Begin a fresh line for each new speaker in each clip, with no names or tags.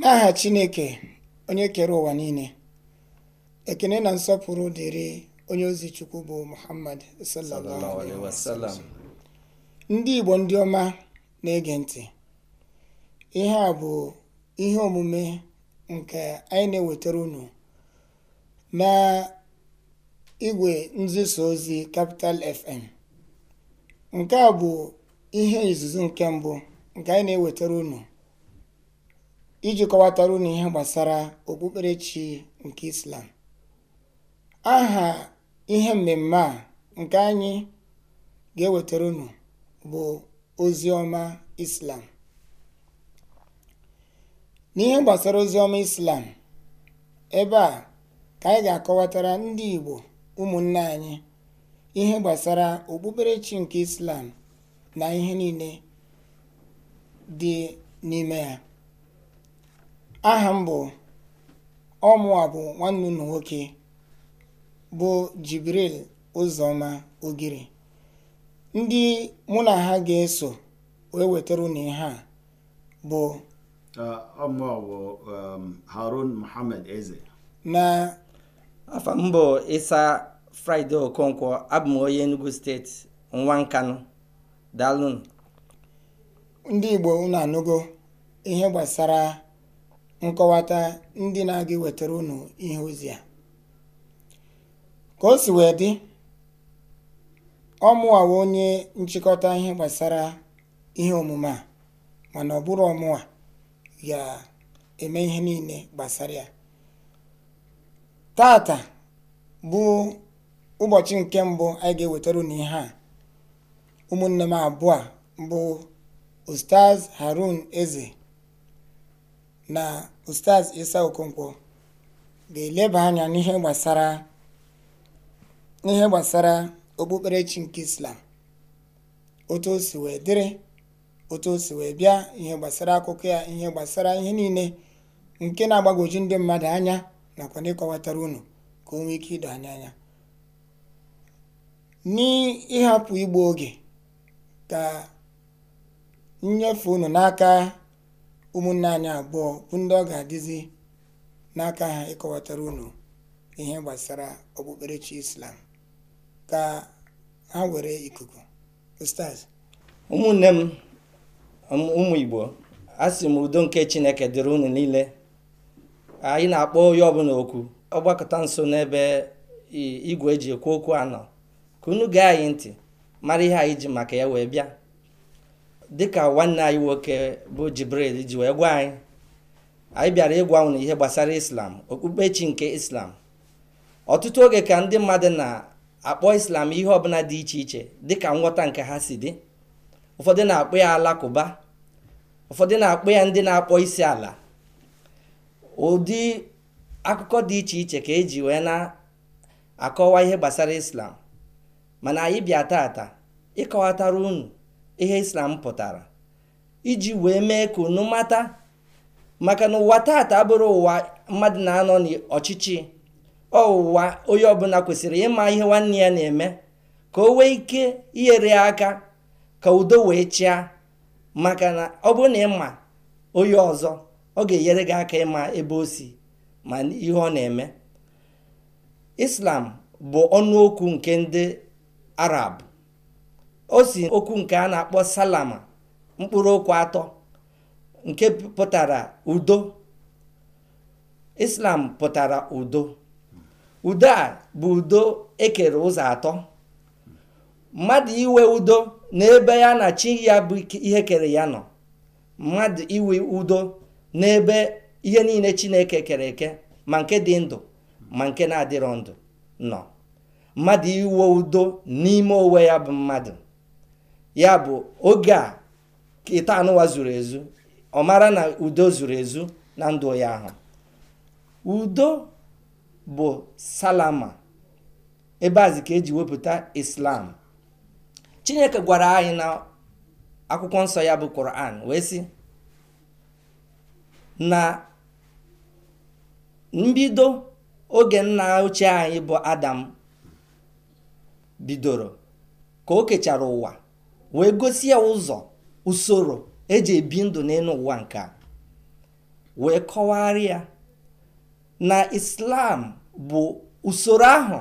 N'aha Chineke onye kere ụwa niile, ekene na nsọpụrụ dịrị onye ozi Chukwu bụ Muhammad
sallallahu
Ndị Igbo ndị ọma na-ege ntị, ihe a bụ ihe omume nke anyị na-ewetara unu na igwe nziso ozi kapital FM. Nke a bụ ihe izuzu nke mbụ nke anyị na-ewetara unu iji kọwatara unu ihe gbasara okpukperechi nke islam aha ihe mmemme a nke anyị ga-ewetara unu bụ ozi ọma islam n'ihe gbasara ozi ọma islam ebe a ka anyị ga-akọwatara ndị igbo ụmụnne anyị ihe gbasara okpukperechi nke islam na ihe niile dị n'ime ya aha m bụ ọmụa bụ nwanne unu nwoke bụ jibril ụzọma ogiri ndị mụ na ha ga-eso wee wetara ihe a bụ
ọmụa bụ um, harun eze
na afọ m
ịsa fraịde okonkwo abụ m onye enugu steeti nwa nkanụ
ndị igbo unu anụgo ihe gbasara nkọwata ndị na-aga ewetara unu ihe ozi a ka o si wee dị ọ onye nchịkọta ihe gbasara ihe omume a mana ọbụrụ ọmụwa ga-eme ihe niile gbasara ya tata bụ ụbọchị nke mbụ anyị ga-ewetara unu ihe a ụmụnne m abụọ bụ Ustaz Harun Eze na Ustaz Isa Okonkwo ga-eleba anya n'ihe gbasara n'ihe gbasara okpukperechi nke Islam otu o wee dịrị otu o wee bịa ihe gbasara akụkọ ya ihe gbasara ihe niile nke na-agbagwoju ndị mmadụ anya nakwa ndị kọwatara unu ka o nwee ike ido anya anya n'ịhapụ igbu oge ka nnyefe unu n'aka ụmụnne anyị abụọ bụ ndị ọ ga-adịzi n'aka ha ịkọwatara unu ihe gbasara okpukperechi islam ka ha were ikuku ustaz
ụmụnne m ụmụ igbo sị m udo nke chineke dịrị unu niile anyị na-akpọ onye ọbụla okwu ọgbakọta nso n'ebe igwe eji ekwu okwu anọ ka unu gaa anyị ntị mara ihe anyị ji maka ya wee bịa dịka nwanne anyị nwoke bụ Jibril ji wee gwa anyị anyị bịara ịgwa unu ihe gbasara islam okpukpechi nke islam ọtụtụ oge ka ndị mmadụ na-akpọ islam ihe ọbụla dị iche iche dịka nghọta nke ha si dị ụfọdụ na-akpọ ya alakụba ụfọdụ na-akpọ ya ndị na-akpọ isi ala ụdị akụkọ dị iche iche ka eji wee na-akọwa ihe gbasara islam mana anyị bịa ata ịkọwatara unu ihe islam pụtara iji wee mee ka unu mata maka na ụwa taata abụrụ ụwa mmadụ na-anọ n'ọchịchị ọwụwa onye ọbụla kwesịrị ịma ihe nwanne ya na-eme ka o wee ike inyere aka ka udo wee chịa maka na ọ na ịma onye ọzọ ọ ga-enyere gị aka ịma ebe o si ma ihe ọ na-eme islam bụ ọnụ okwu nke ndị arab o si okwu nke a na-akpọ salama mkpụrụ okwu atọ nke pụtara udo islam pụtara udo udo a bụ udo ekere ụzọ atọ mmadụ iwe udo n'ebe ya na chi ya bụ ihe kere ya nọ mmadụ iwe udo n'ebe ihe niile chineke kere eke ma nke dị ndụ ma nke na-adịrọ ndụ nọ mmadụ iwe udo n'ime onwe ya bụ mmadụ ya bụ oge a ịta anụwa zuru ezu ọmara na udo zuru ezu na ndụ ya ahụ udo bụ salama ebe azi ka eji wepụta islam chineke gwara anyị na akwụkwọ nsọ ya bụ koran wee sị na mbido oge nna ochie anyị bụ adam bidoro ka o kechara ụwa wee gosi ya ụzọ usoro eji ebi ndụ n'elu ụwa nke a wee kọwara ya na islam bụ usoro ahụ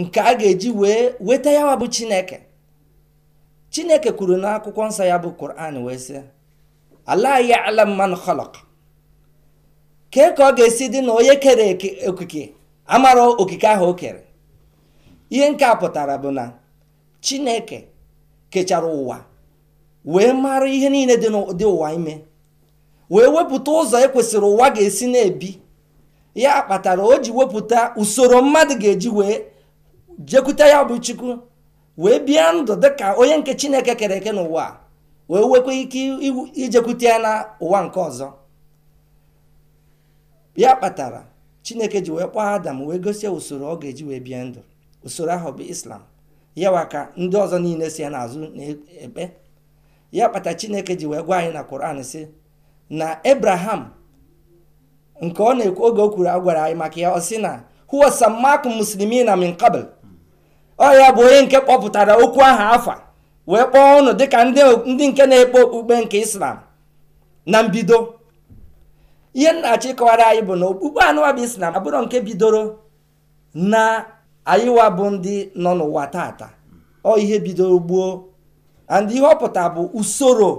nke a ga-eji wee weta ya bụ chineke chineke kwuru n'akwụkwọ nsọ ya bụ kur'an wee sị ala ya alam man khalaq kee ka ọ ga-esi dị na onye kere okike amara okike ahụ o kere ihe nke pụtara bụ na chineke kechara ụwa wee mara ihe niile dị ụwa ime wee wepụta ụzọ ekwesịrị ụwa ga-esi na-ebi ya kpatara o ji wepụta usoro mmadụ ga-eji wee jekwute ya bụ chukwu wee bịa ndụ dịka onye nke chineke kere eke n'ụwa wee nwekwa ike ijekwute ya na ụwa nke ọzọ ya kpatara chineke ji wee kpọọ adam wee gosi usoro ọ ga-eji wee bịa ndụ usoro ahụ bụ islam yawa ka ndị ọzọ niile si ya n'azụ na-ekpe ya kpata chineke ji wee gwa anyị na Quran si na ebraham nke ọ na-ekwu oge o kwuru agwara anyị maka ya ọ na huwa samakum muslimina min qabl ọ ya bụ onye nke kpọpụtara okwu aha afa wee kpọọ ụnụ dịka ndị nke na-ekpe okpukpe nke islam na mbido ihe nna achị kọwara anyị bụ na okpukpe anụwa bụ islam abụrọ nke bidoro na anyịwa bụ ndị nọ n'ụwa tata ọ ihe bidoro gboo and ihe ọ bụ usoro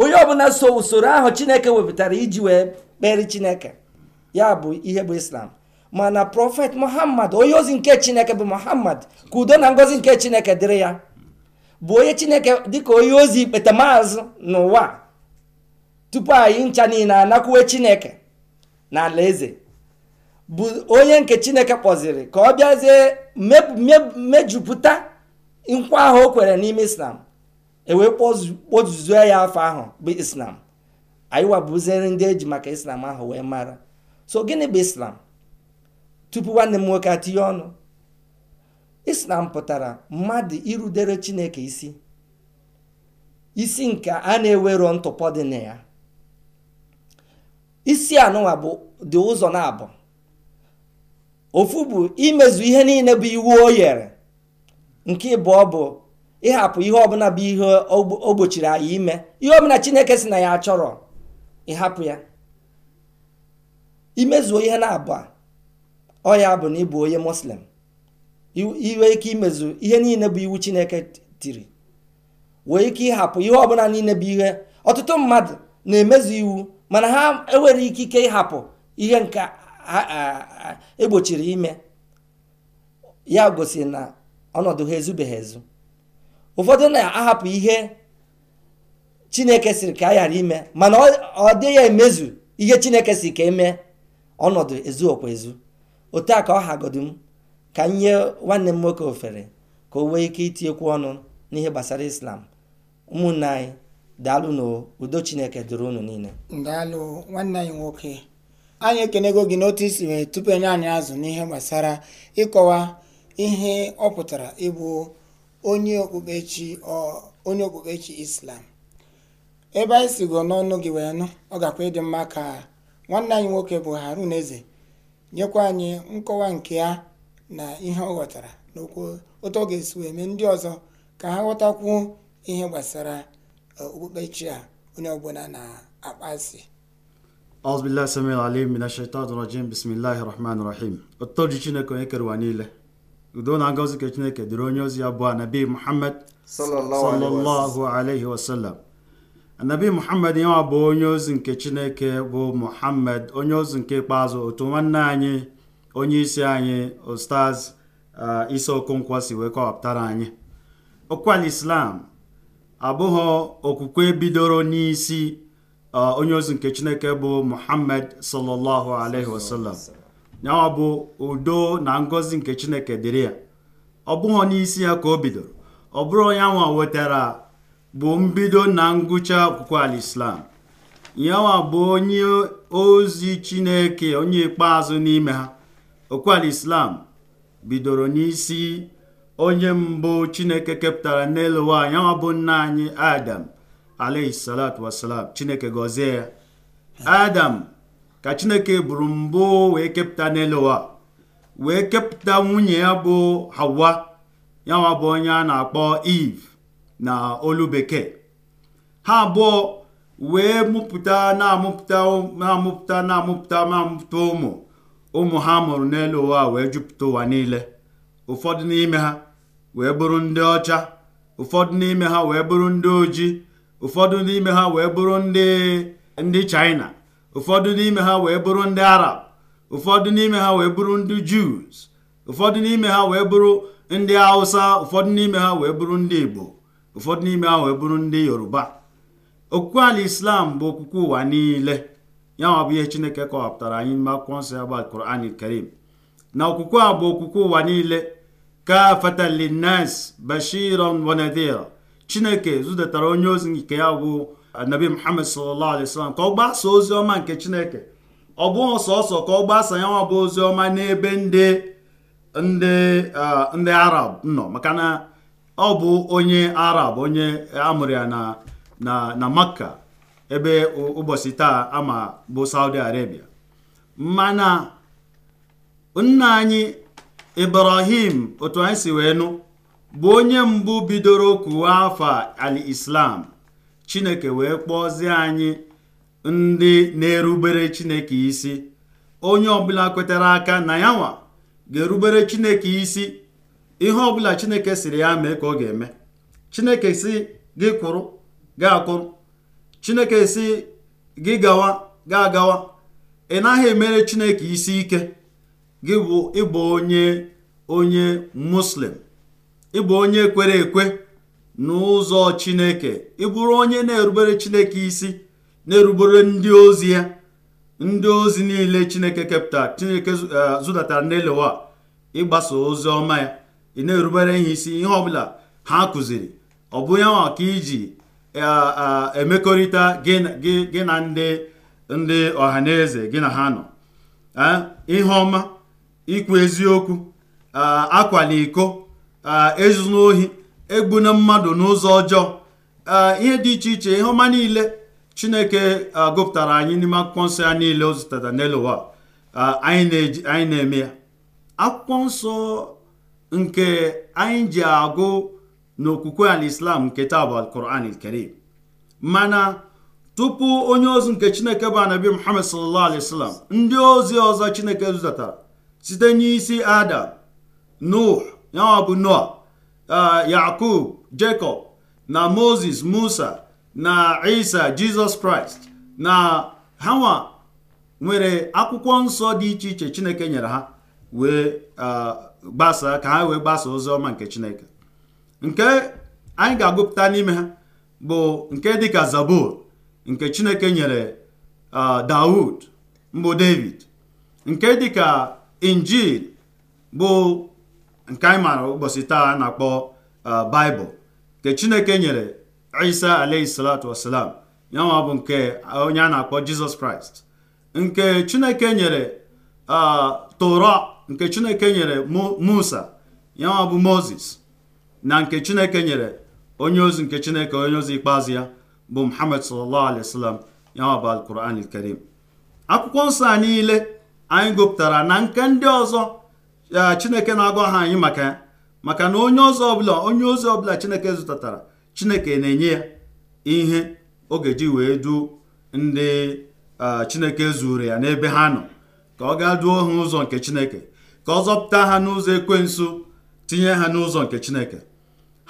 onye ọbụla so usoro ahụ chineke wepụtara iji wee kpere chineke ya bụ ihe bụ islam mana prọfet muhammad onye ozi nke chineke bụ muhammad ka udo na ngozi nke chineke dịrị ya bụ onye chineke dịka onye ozi ikpeta n'ụwa tupu anyị ncha niile anakwuwe chineke na eze. bụ onye nke chineke kpọziri ka ọ bịazie mejupụta nkwa ahụ o kwere n'ime islam ewee ozuzo ya afọ ahụ bụ islam anyị wabuziri ndị eji maka islam ahụ wee mara so gịnị bụ islam tupu nwanne m nwoke atinye ọnụ islam pụtara mmadụ irudere chineke isi isi nke a na-ewero ntụpọ dị na ya isi anụnwa bụ dị ụzọ na abụọ ofu bụ imezu ihe niile bụ iwu o yere nke ịbụọ bụ ịhapụ ihe ọbụla bụ ihe o gbochiri anyị ime ihe ọbụla chineke si na ya chọrọ ịhapụ ya imezuo ihe na-abụọ ọ ya bụ na ịbụ onye muslim iwe ike imezu ihe niile bụ iwu chineke tiri wee ike ịhapụ ihe ọbụla niile bụ ihe ọtụtụ mmadụ na-emezu iwu mana ha enwere ikike ịhapụ ihe nke egbochiri ime ya gosi na ọnọdụ ha ezubeghị ezu ụfọdụ na-ahapụ ihe chineke siri ka a ghara ime mana ọ dịghị emezu ihe chineke si ka eme ọnọdụ okwa ezu otu a ka ọ hagodu m ka m nye nwanne m nwoke ofere ka o nwee ike itinyekwu ọnụ n'ihe gbasara islam ụmụnne anyị daalụ na udo chineke duru unu niile
daalụ nwanne anyị nwoke anyị ekenego gị n'otu isi wee tupu enye anyị azụ n'ihe gbasara ịkọwa ihe ọ pụtara ịbụ onye okpukpechi onye okpukpechi islam ebe anyị si sigo n'ọnụ gị wee nụ ọ gakwa ịdị mma ka nwanne anyị nwoke bụ harun eze nyekwa anyị nkọwa nke ya na ihe ọ ghọtara n'okwu otu ọ ga-esi wee mee ndị ọzọ ka ha ghọtakwuo ihe gbasara uh, okpukpechi a onye ọbụla na-akpasi
ọzbillah samil alim mina shaitan rajim bismillahi rahman rahim ụtọji chineke onye kere ụwa niile udo na ngọzi ka chineke dịrị onye ozi ya bụ anabi muhammad sallallahu alaihi wasallam anabi muhammad ya bụ onye ozi nke chineke bụ muhammad onye ozi nke ikpeazụ otu nwanne anyị onye isi anyị ostaz uh, isi okonkwo si wee kọwapụtara anyị okwu al islam abụghị okwukwe bidoro n'isi onye ozi nke chineke bụ muhammad sallallahu alaihi wasallam ya bụ udo na ngọzi nke chineke dịrị ya ọ bụghị n'isi ya ka o bidoro ọ bụrụ onye nwa wetara bụ mbido na ngwụcha akwụkwọ alislam nyawa bụ onye ozi chineke onye ikpeazụ n'ime ha okwuala islam bidoro n'isi onye mbụ chineke kepụtara n'elu ụwa nyawa bụ nna anyị adam alayhi salatu wasalam chineke gọzie ya adam ka chineke buru mbụ wee kepụta n'elu ụwa wee kepụta nwunye ya bụ hawa yanwa bụ onye a na-akpọ eve na olu bekee ha abụọ wee mụpụta na-amụpụta na-amụpụta na-amụpụta na-amụpụta ụmụ ụmụ ha mụrụ n'elu ụwa wee jupụta ụwa niile ụfọdụ n'ime ha wee bụrụ ndị ọcha ụfọdụ n'ime ha wee bụrụ ndị ojii ụfọdụ n'ime ha wee bụrụ ndị ndị China ụfọdụ n'ime ha wee bụrụ ndị Arab ụfọdụ n'ime ha wee bụrụ ndị Jews ụfọdụ n'ime ha wee bụrụ ndị Hausa ụfọdụ n'ime ha wee bụrụ ndị Igbo ụfọdụ n'ime ha wee bụrụ ndị Yoruba okwukwe ala Islam bụ okwukwe ụwa niile ya nwa bụ ihe Chineke kọwapụtara anyị n'ime akwụkwọ nsọ ya bụ al Karim na okwukwe a bụ okwukwe ụwa niile ka fatalinas bashiran wa chineke zụtara onye ozi nke ya bụ anabi muhammad sallallahu alaihi wasallam ka ọ gbasaa ozi ọma nke chineke ọ bụghị sọsọ ka ọ gbasa ya bụ ozi ọma n'ebe ndị ndị arab nọ maka na ọ bụ onye arab onye amụrụ ya na na makka ebe ụbọchị taa ama bụ saudi arabia mana nna anyị ibrahim otu anyị si wee nụ bụ onye mbụ bidoro kụwa afa al-islam chineke wee kpọzie anyị ndị na-erubere chineke isi onye ọbụla kwetara aka na ya nwa ga-erubere chineke isi ihe ọbụla chineke siri ya mee ka ọ ga-eme chineke si gị kwụrụ gị akụrụ chineke si gị gawa gị agawa ị naghị emere chineke isi ike gị bụ ịbụ onye onye muslim ị bụ onye kwere ekwe n'ụzọ chineke ịbụrụ onye na-erubere chineke isi na-erubere ndị ozi ya ndị ozi niile chineke kepụta chineke eh, zụdatara n'elewa ịgbasa ozi ọma ya ị na-erubere ihe isi ihe ọ bụla ha kụziri ọ bụ ya nwa ka iji eh, eh, emekọrịta gị na ndị ndị ọhaneze gị na ha nọ ihe ọma ikwu eziokwu akwala iko Eh, ezuna ohi egbuna mmadụ n'ụzọ ọjọọ eh, ihe dị iche iche ihe ọma niile chineke eh, gụpụtara anyị n'ime akwụkwọ nsọ ya niile o zụtara n'elu anyị na-eme ya akwụkwọ nsọ nke anyị ji agụ n'okwukwe islam nke taa bụ alkuran karim mana tupu onye ozi nke chineke bụ anabi muhammad sallallahu alaihi wasallam ndị ozi ọzọ chineke zụtatara site n'isi adam nuh ya bụ noa uh, yakub jacob na moses musa na isa jizọs kraịst na hawa nwere akwụkwọ nsọ dị iche iche chineke nyere ha wee uh, gbasaa ka ha wee gbasaa ozi ọma nke chineke nke anyị ga-agụpụta n'ime ha bụ nke dịka zabur nke chineke nyere uh, daud mbụ david nke dịka injil bụ nke anyị maara ụbọchị taa a na-akpọ uh, baịbụl nke chineke nyere isa alayhi salatu wasalam ya bụ nke onye a na-akpọ jizọs kraịst nke chineke nyere uh, toro nke chineke nyere musa ya bụ moses na nke chineke nyere onye ozi nke chineke onye ozi ikpeazụ ya bụ muhammad sallallahu alaihi wasallam ya nwa bụ alquran akwụkwọ nsọ a niile anyị gụpụtara na nke ndị ọzọ chineke na-agwa ha anyị maka ya maka na onye ọzọ ọbụla onye ozi ọbụla chineke zụtatara chineke na-enye ya ihe ọ ga-eji wee duo ndị chineke zuru ya n'ebe ha nọ ka ọ gaa duo ha ụzọ nke chineke ka ọ zọpụta ha n'ụzọ nso tinye ha n'ụzọ nke chineke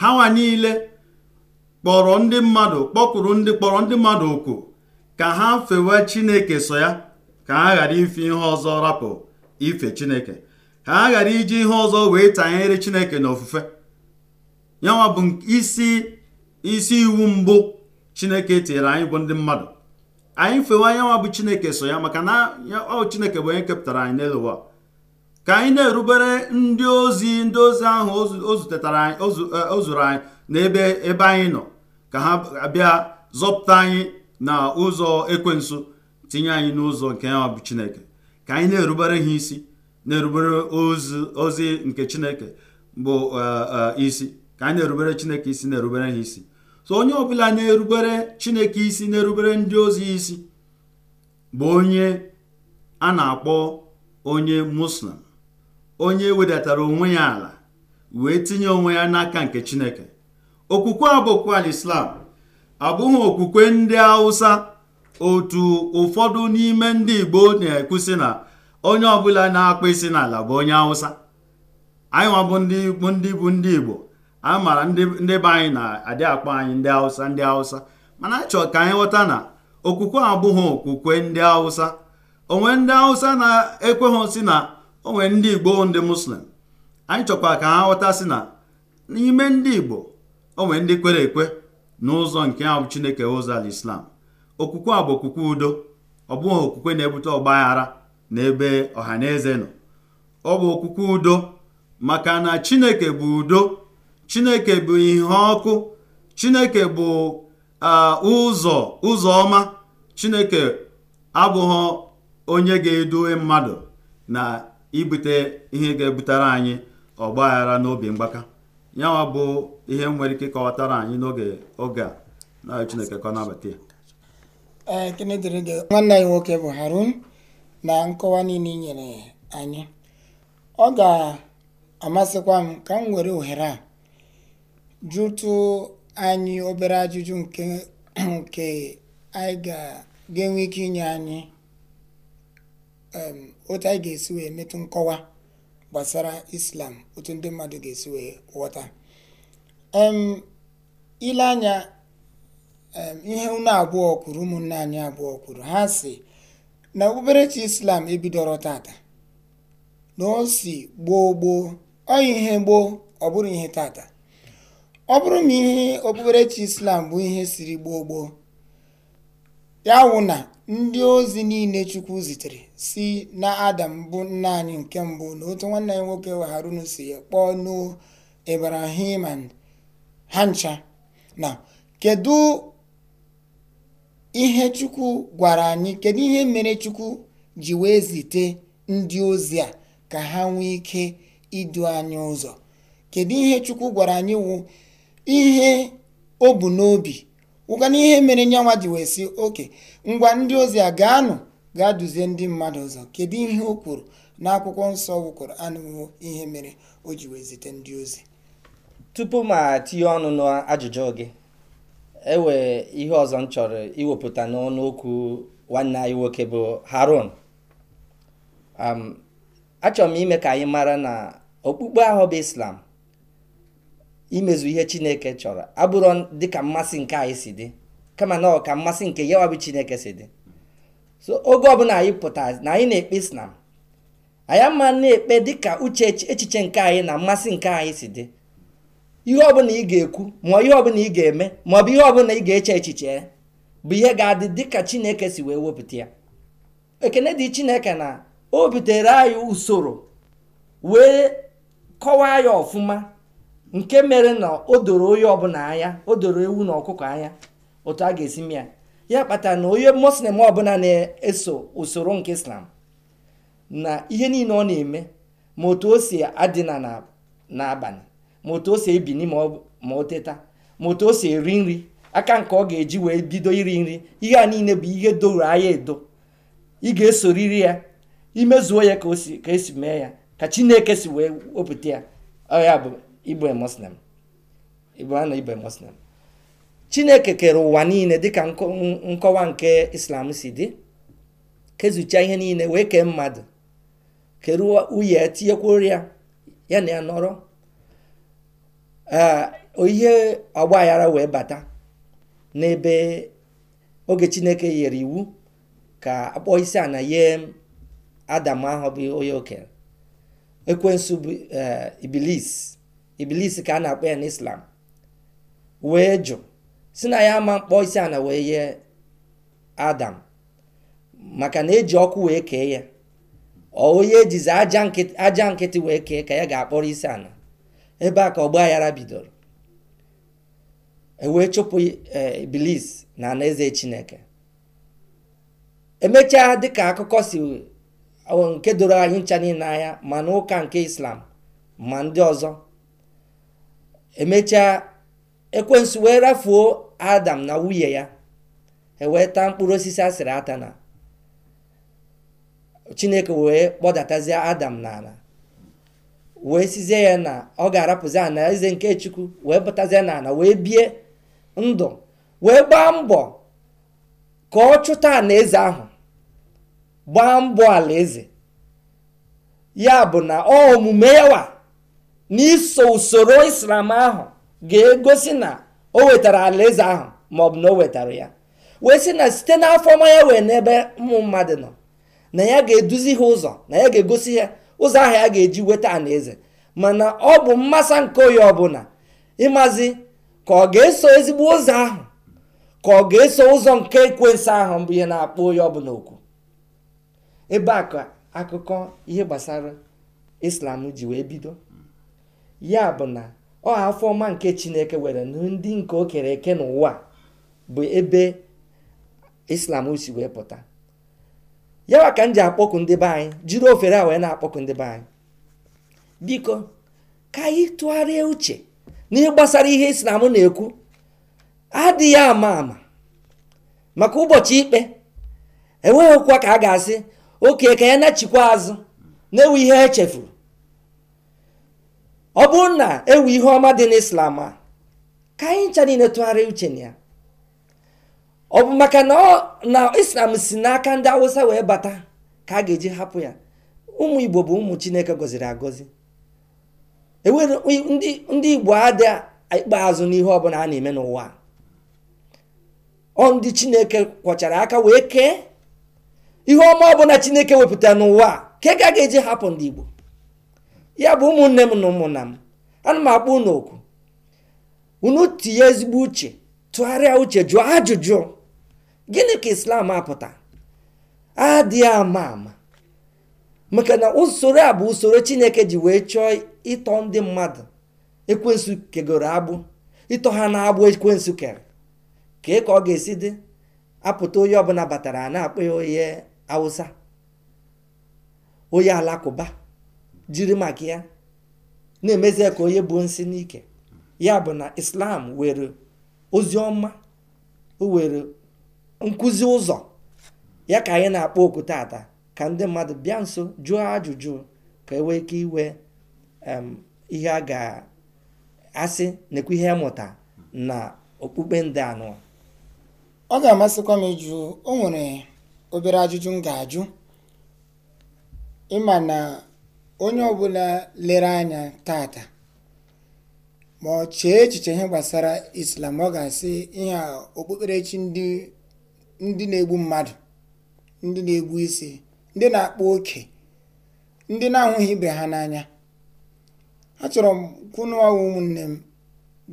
ha nwa niile kpọrọ ndị mmadụ kpọkwuru ndị kpọrọ ndị mmadụ oku ka ha fewe chineke so ya ka ha ghara ife ihe ọzọ rapụ ife chineke ka ha ghara iji ihe ọzọ wee tanyere chineke na ofufe yanwa bụ isi isi iwu mbụ chineke tinyere anyị bụ ndị mmadụ anyị fewa anyanwa bụ chineke so ya maka na ọ chineke bụ onye kepụtara anyị n'elu ka anyị na-erubere ndị ozi ndị ozi ahụ o zutetara o e, anyị n'ebe ebe anyị nọ ka ha bịa zọpụta anyị na ụzọ ekwensu tinye anyị n'ụzọ nke ya bụ chineke ka anyị na-erubere ha isi na-erubere ozi nke chineke bụ uh, uh, isi ka anyị na chineke isi na-erubere ha isi so onye ọbụla na-erubere chineke isi na-erubere ndị ozi isi bụ onye a na-akpọ onye muslim onye wedatara onwe ya ala wee tinye onwe ya n'aka nke chineke okwukwe abụkwa alislam abụghị okwukwe ndị hausa otu ụfọdụ n'ime ndị igbo na-ekwusi na onye ọbụla na-akpụ isi n'ala bụ onye awụsa anyị nwa bụ ndị bụ ndị igbo anyị mara ndị be anyị na-adị akpọ anyị ndị awụsa ndị awụsa mana anyị chọrọ ka anyị ghọta na okwukwe abụghị okwukwe ndị awụsa onwe ndị awụsa na-ekweghị si na onwe ndị igbo ndị muslim anyị chọkwa ka ha ghọta si na n'ime ndị igbo onwe ndị kwere ekwe n'ụzọ nke ahụ chineke ụzọ al islam okwukwe a bụ okwukwe udo ọ bụghị okwukwe na-ebute ọgbaghara n'ebe ọha na eze nọ ọ bụ okwukwe udo maka na chineke bụ udo chineke bụ ihe ọkụ chineke bụ ụzọ ụzọ ọma chineke abụghị onye ga-eduwe mmadụ na ibute ihe ga-ebutere anyị ọgbaghara n'obi mgbaka yanwa bụ ihe nwere ike kọwatara anyị n'oge oge a na chineke nabata
nwanne anyị nwoke bụ harun na nkọwa niile nyere anyị ọ ga-amasịkwa m ka m were ohere a jụtụ anyị obere ajụjụ nke nke anyị ga-enwe ike inye anyị otu anyị ga-esi wee metụ nkọwa gbasara islam otu ndị mmadụ ga-esi wee ghọta ile anya ihe unu abụọ kwuru ụmụnne anyị abụọ kwuru ha si na okpukperechi islam ebidoro tata na o si gboo gboo ọyị ihe gboo ọ bụrụ ihe tata ọ bụrụ ma ihe okpukperechi islam bụ ihe siri gboo gboo ya wụ na ndị ozi niile chukwu zitere si na adam bụ nna anyị nke mbụ na otu nwanne ya nwoke harun si kpọọ ibrahim ha ncha na kedu ihe chukwu gwara anyị kedu ihe mere chukwu ji wee zite ndị ozi a ka ha nwee ike idu anyị ụzọ kedu ihe chukwu gwara anyị wụ ihe o bu n'obi wụkana ihe mere nyanwa ji wee si oke ngwa ndị ozi a gaanụ gaa duzie ndị mmadụ ụzọ kedu ihe o kwuru na akwụkwọ nsọ wụkwuru anụwo ihe mere o ji wee zite ndị ozi
tupu m tinye ọnụ n'ajụjụ gị ewe ihe ọzọ m chọrọ iwepụta n'ọnụ okwu nwanne anyị nwoke bụ Harun um, achọrọ m ime ka anyị mara na okpukpe ahụ bụ Islam imezu ihe Chineke chọrọ abụrụ dịka mmasị nke anyị si dị kama na mmasị nke yawa bụ Chineke si dị so oge ọbụla anyị pụtara na anyị na-ekpe Islam anyị ama na-ekpe dịka uche echiche nke anyị na mmasị nke anyị si dị ihe ọbụla ị ga-ekwu maọ ihe ọbụla ị ga-eme maọbụ ihe ọbụla ị ga-eche echiche bụ ihe ga-adị dịka chineke si wee wepụta ya ekene dị chineke na o butere anyị usoro wee kọwaa ya ọfụma nke mere na o doro onye ọbụla anya o doro ewu na ọkụkọ anya otu a ga-esi m ya ya kpatara na onye muslim ọbụla na-eso usoro nke islam na ihe niile ọ na-eme ma otu o si adị na n'abalị ma otu o si ebini ma o teta ma otu eri nri aka nke ọ ga-eji wee bido iri nri ihe a niile bụ ihe doro anya edo ị ga-esoriri ya imezuo ya ka esi mee ya ka chineke si wee wepụta ya ọya bụ igbe muslim na igbe muslim chineke kere ụwa niile dịka nkọwa nke islam si dị kezuchaa ihe niile wee kee mmadụ kere uye tinyekwuo ya ya na ya nọrọ ihe agbaghara wee bata n'ebe oge chineke nyere iwu ka akpọ isi ana nye adam ahụ bụ onye okenye ekwensu bụ e, ibilis ka a na-akpọ ya n'islam wee jụ si na ya ama mkpọ isi ana wee nye adam maka na eji ọkụ wee kee ya onye ejizi aja nkịtị wee kee ka ya ga-akpọrọ isi ana ebe a ka ọgba aghara bidoro ewee chụpụ e, Iblis na eze chineke emechaa dịka akụkọ si nke doro anyị ncha niile anya ma ụka nke islam ma ndị ọzọ emechaa ekwensu wee rafuo adam na nwunye ya ewee taa mkpụrụ osisi asịrị ata na chineke wee kpọdatazie adam n'ala wee sizie ya na ọ ga-arapụzi ana eze nke chukwu wee batazie na ana wee bie ndụ wee gbaa mbọ ka ọ chụta ana eze ahụ gbaa mbọ alaeze ya bụ na ọ omume yawa n'iso usoro islam ahụ ga-egosi na o wetara alaeze ahụ maọbụ na o wetara ya wee sị na site n'afọ ọma ya wee n'ebe ụmụ mmadụ nọ na ya ga-eduzi ha ụzọ na ya ga-egosi ya ụzọ ahụ ya ga-eji weta eze mana ọ bụ mmasa nke onye ọbụla ịmazi ka ọ ga-eso ezigbo ụzọ ahụ ka ọ ga-eso ụzọ nke ekwensu ahụ bụ ihe na-akpọ onye ọbụla okwu ebe a akụkọ ihe gbasara islam ji wee bido ya bụ na ọ afọ ọma nke chineke were ndị nke o kere eke n'ụwa bụ ebe islam si wee pụta yawa ka m ji akpọkụ ndị be anyị jiri ofere a wee na akpọkụ ndị be anyị biko ka anyị tụgharịa uche na ị gbasara ihe islam na-ekwu adịghị ama ama maka ụbọchị ikpe enweghịkwa ka a ga-asị oke ka ya nachikwa azụ na-ewu ihe echefuru ọ bụrụ na ewu ihe ọma dị n'islam a ka anyị ncha niile tụgharịa uche na ya ọ bụ maka na islam si n'aka ndị awụsa wee bata ka a ga-eji hapụ ya ụmụ igbo bụ ụmụ chineke gọziri agọzi enwere ndị igbo adị ikpeazụ n'ihe ọbụla a na-eme n'ụwa ọ ndị chineke kwọchara aka wee kee ihe ọma ọbụla chineke wepụta n'ụwa ka ka a ga-eji hapụ ndị igbo ya bụ ụmụnne m na ụmụnna m ana m akpọ unu oku unu tinye ezigbo uche tụgharịa uche jụọ ajụjụ gịnị ka islam apụta adịghị ama ama maka na usoro a bụ usoro chineke ji wee chọọ ịtọ ndị mmadụ ekwensu kegoro agbụ ịtọ ha na-agbụ ekwensu kere kee ka ọ ga-esi dị apụta onye ọbụla batara na-akpọ ya onye awụsa onye alakụba jiri maka ya na-emezie ka onye bụ nsị n'ike ya bụ na islam were ozi ọma o were nkụzi ụzọ ya ka anyị na-akpọ oku tata ka ndị mmadụ bịa nso jụọ ajụjụ ka e wee ike iwe ihe a ga-asị nekwu ihe mụta na okpukpe ndị anụ
ọ ga-amasịkwa m ịjụ o nwere obere ajụjụ m ga-ajụ ịma na onye ọbụla lere anya tata ma ọ chee echiche ihe gbasara islam ọ ga-asị ihe okpukperechi ndị ndị na-egbu mmadụ ndị na-egbu isi ndị na-akpa oke ndị na-ahụghị ibe ha n'anya achọrọ m kwunuwa ụmụnne m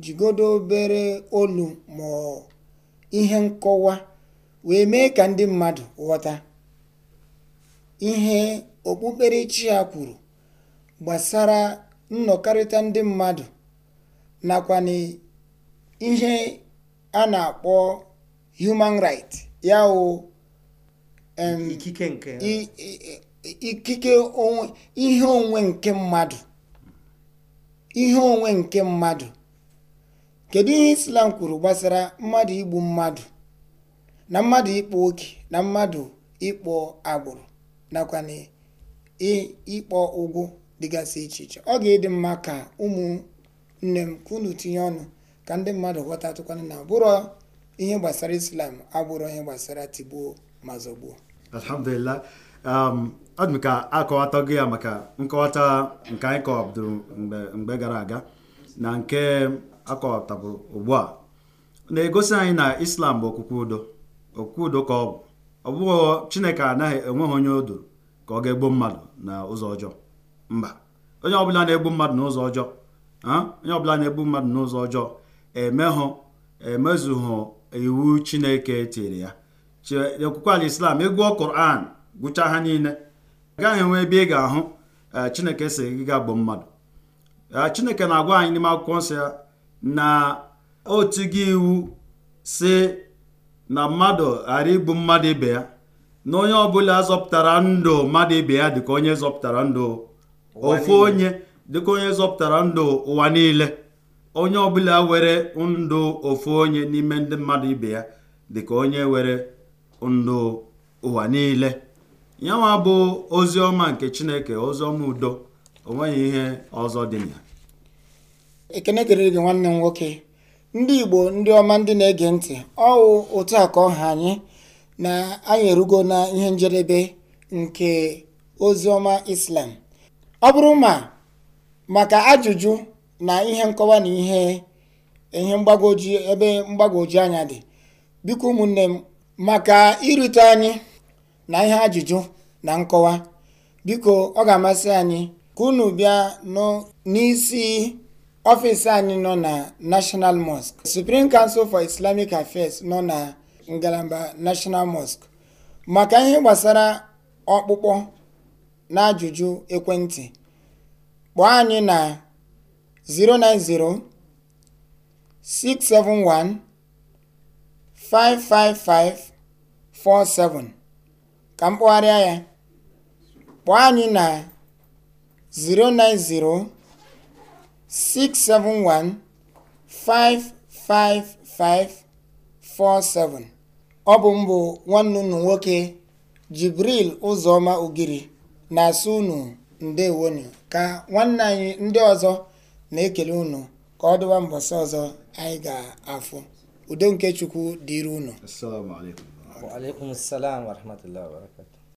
jigodo obere olu ma ihe nkọwa wee mee ka ndị mmadụ ghọta ihe okpukperechi a kwuru gbasara nnọkarịta ndị mmadụ nakwa na ihe a na-akpọ human right ya o ikike nke ihe onwe nke mmadụ ihe onwe nke mmadụ kedu ihe islam kwuru gbasara mmadụ igbu mmadụ na mmadụ ịkpọ oke na mmadụ ịkpọ agbụrụ nakwa na ịkpọ ụgwụ dịgasị iche iche ọ ga-ịdị mma ka ụmụnne m ka tinye ọnụ ka ndị mmadụ ghọtatụkwana na bụrụ ihe gbasara islam abụrụ ihe gbasara tigbuo ma zọgbuo
alhamdulillah um, ọ dị ka gị ya maka nkọwata nke anyị kọwabdoro mgbe gara aga na nke akọwatabụrụ ugbu a na-egosi anyị na islam bụ okwukwe udo okwukwe udo ka ọ bụ ọ bụghị chineke anaghị enweghị onye odo ka ọ ga-egbu mmadụ na ụzọ ọjọọ mba onye ọbụla na-egbu mmadụ n'ụzọ ọjọọ onye ọbụla na-egbu mmadụ n'ụzọ ọjọọ emehụ emezughụ iwu chineke tiri ya okwukwe ala islam ị gụọ koran gụchaa ha niile agaghị enwe ebe ị ga-ahụ e, chineke si gị ga gbuo mmadụ e, chineke na-agwa anyị n'ime akwụkwọ nsọ ya na otu gị iwu si na mmadụ ghara igbu mmadụ ibe ya na onye ọbụla zọpụtara ndụ mmadụ ibe ya dịka onye zọpụtara ndụ ofu onye dịka onye zọpụtara ndụ ụwa niile onye ọbụla were ndụ ofu onye n'ime ndị mmadụ ibe ya dịka onye were ndụ ụwa niile yanwa bụ ozi ọma nke chineke ozi ọma udo onweghị ihe ọzọ dị na ya
ekene dịrị gị nwanne m nwoke ndị igbo ndị ọma ndị na-ege ntị ọwụ otu a ka ọha anyị na anyị erugo na ihe njedebe nke ozi ọma islam ọ bụrụ ma maka ajụjụ na ihe nkọwa na ihe ihe mgbagwoju ebe mgbagwoju anya dị biko ụmụnne m maka irute anyị na ihe ajụjụ na nkọwa biko ọ ga-amasị anyị ka unu bịa n'isi ọfịs anyị nọ na National mosk Supreme Council for Islamic Affairs nọ na ngalaba National mosk maka ihe gbasara ọkpụkpọ na ajụjụ ekwentị kpọọ anyị na 090 671 55547 ka m kpụgharịa ya kpọọ anyị na 090 671 55547 ọ bụ mbụ nwanne unu nwoke Jibril Ụzọma Ogiri na-asụ unu ndewonu ka nwanne anyị ndị ọzọ na-ekele unu ka ọ dụwa mbọsị ọzọ anyị ga-afụ udo nke chukwu dịrị unu